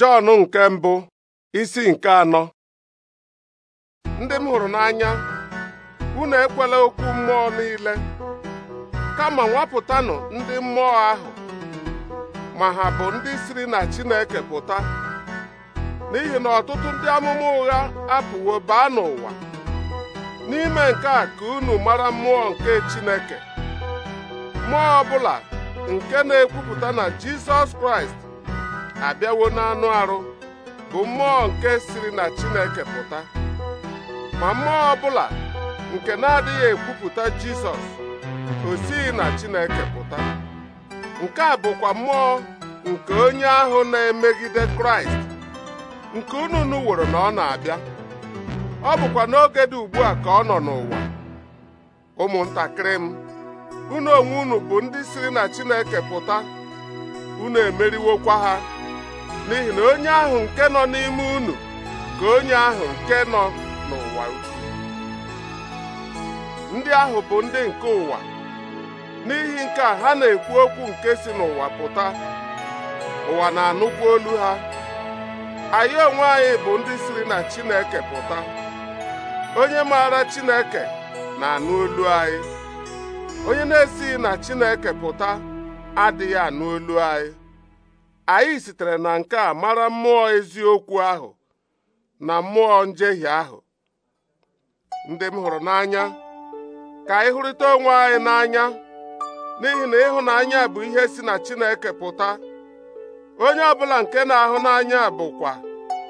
Jọn nke mbụ isi nke anọ ndị m hụrụ n'anya unu ekwela okwu mmụọ niile kama nwapụtanụ ndị mmụọ ahụ ma ha bụ ndị siri na Chineke pụta n'ihi na ọtụtụ ndị amụma ụgha apụwo baa n'ụwa n'ime nke a ka unu mara mmụọ nke Chineke mmụọ ọbụla nke na-ekwupụta na Jizọs Kraịst abịawo n'anụ arụ bụ mmụọ nke siri na Chineke pụta ma mmụọ ọbụla nke na-adịghị ekwupụta Jizọs osighi na Chineke pụta nke a bụkwa mmụọ nke onye ahụ na-emegide Kraịst nke unu wụrụ na ọ na-abịa ọ bụkwa n'oge dị ugbu a ka ọ nọ n'ụwa ụmụntakịrị m unu onwe unu bụ ndị siri na Chineke pụta unu emeriwokwa ha n'ihi na onye ahụ nke nọ n'ime unu ka onye ahụ nke nọ n'ụwa ukwu ndị ahụ bụ ndị nke ụwa n'ihi nke a ha na-ekwu okwu nke si n'ụwa pụta ụwa na anụkwu olu ha anyị onwe anyị bụ ndị siri na Chineke pụta onye maara Chineke na-anụ olu anyị onye na-esighị na Chineke pụta adịghị anụ olu anyị anyị sitere na nke a mara mmụọ eziokwu ahụ na mmụọ njehie ahụ ndị m hụrụ n'anya ka anyị hụrịta onwe anyị n'anya n'ihi na ịhụnanya bụ ihe si na Chineke pụta onye ọbụla nke na-ahụ n'anya bụkwa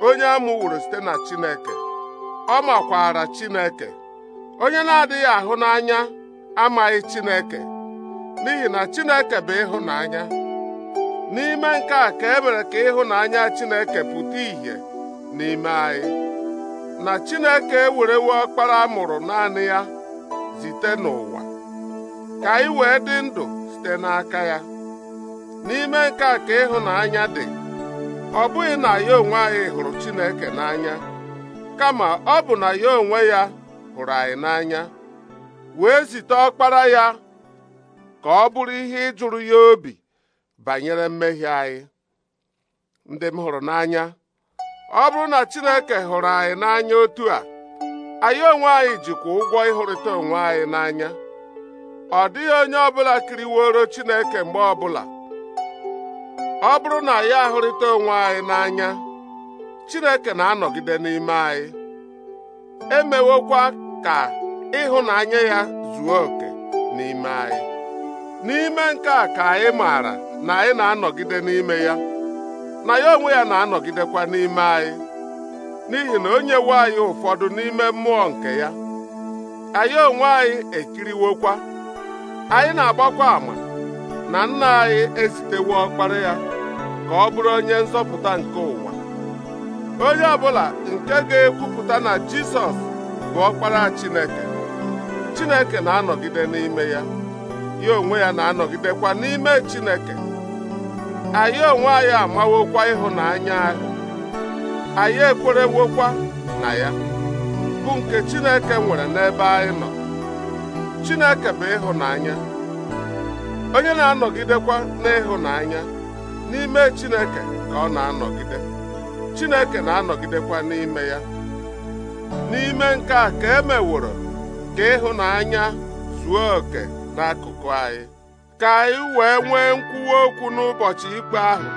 onye amụworo site na Chineke ọ makwara Chineke onye na-adịghị ahụ n'anya amaghị Chineke n'ihi na Chineke bụ ịhụnanya n'ime nke a ka e mere ka ịhụnanya Chineke pụta ìhè n'ime anyị na Chineke ewerewo ọkpara mụrụ naanị ya zite n'ụwa ka anyị wee dị ndụ site n'aka ya n'ime nke a ka ịhụnanya dị ọ bụghị na ya onwe anyị hụrụ Chineke n'anya kama ọ bụ na ya onwe ya hụrụ anyị n'anya wee zite ọkpara ya ka ọ bụrụ ihe ịjụrụ ya obi banyere mmehie anyị ndị m hụrụ n'anya ọ bụrụ na Chineke hụrụ anyị n'anya otu a anyị onwe anyị jikwa ụgwọ ịhụrịta onwe anyị n'anya ọ dịghị onye ọbụla kiriworo Chineke mgbe ọbụla ọ bụrụ na ya ahụrịta onwe anyị n'anya Chineke na-anọgide n'ime anyị emewokwa ka ịhụnanya ya zuo oke n'ime anyị n'ime nke a ka anyị maara na anyị na-anọgide n'ime ya na ya onwe ya na-anọgidekwa n'ime anyị n'ihi na onye nwe anyị ụfọdụ n'ime mmụọ nke ya anyị onwe anyị ekiriwokwa anyị na-agbakwa ama na nna anyị ezitewo ọkpara ya ka ọ bụrụ onye nzọpụta nke ụwa onye ọbụla nke ga-ekwupụta na Jizọs bụ ọkpara Chineke Chineke na-anọgide n'ime ya ya onwe ya na-anọgidekwa n'ime Chineke anyị onwe anyị amawokwa ịhụnanya ahụ anyị ekwerewokwa na ya bụ nke Chineke nwere n'ebe anyị nọ Chineke bụ ịhụnanya onye na-anọgidekwa n'ịhụnanya n'ime Chineke ka ọ na-anọgide Chineke na-anọgidekwa n'ime ya n'ime nke a ka e meworo ka ịhụnanya zuo oke. n'akụkụ anyị ka anyị wee nwee nkwuwa okwu n'ụbọchị ikpe ahụ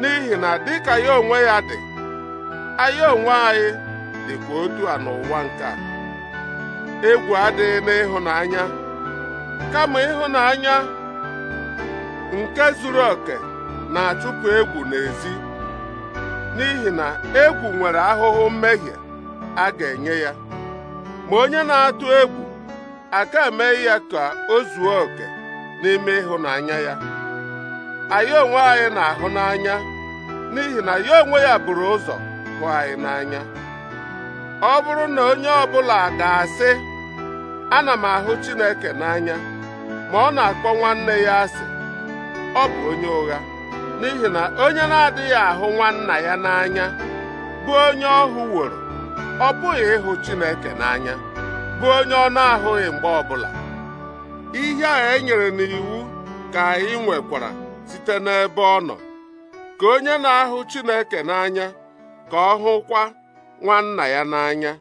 n'ihi na dịka ya onwe ya dị anyị onwe anyị dịkwa otu a n'ụwa nke a. egwu adịghị n'ịhụnanya kama ịhụnanya nke zuru oke na-achụpụ egwu n'ezi n'ihi na egwu nwere ahụhụ mmehie a ga-enye ya ma onye na-atụ egwu aka mee ya ka o zuo oke n'ime ịhụnanya ya anyị onwe anyị na-ahụ n'anya n'ihi na ya onwe ya buru ụzọ hụ anyị n'anya ọ bụrụ na onye ọbụla ga-asị ana m ahụ Chineke n'anya ma ọ na-akpọ nwanne ya asị ọ bụ onye ụgha n'ihi na onye na-adịghị ahụ nwanna ya n'anya bụ onye ọhụ woro ọ bụghị ịhụ Chineke n'anya bụ onye ọ na-ahụghị mgbe ọbụla ihe a enyere n'iwu ka anyị nwekwara site n'ebe ọ nọ ka onye na-ahụ Chineke n'anya ka ọ hụkwa nwanna ya n'anya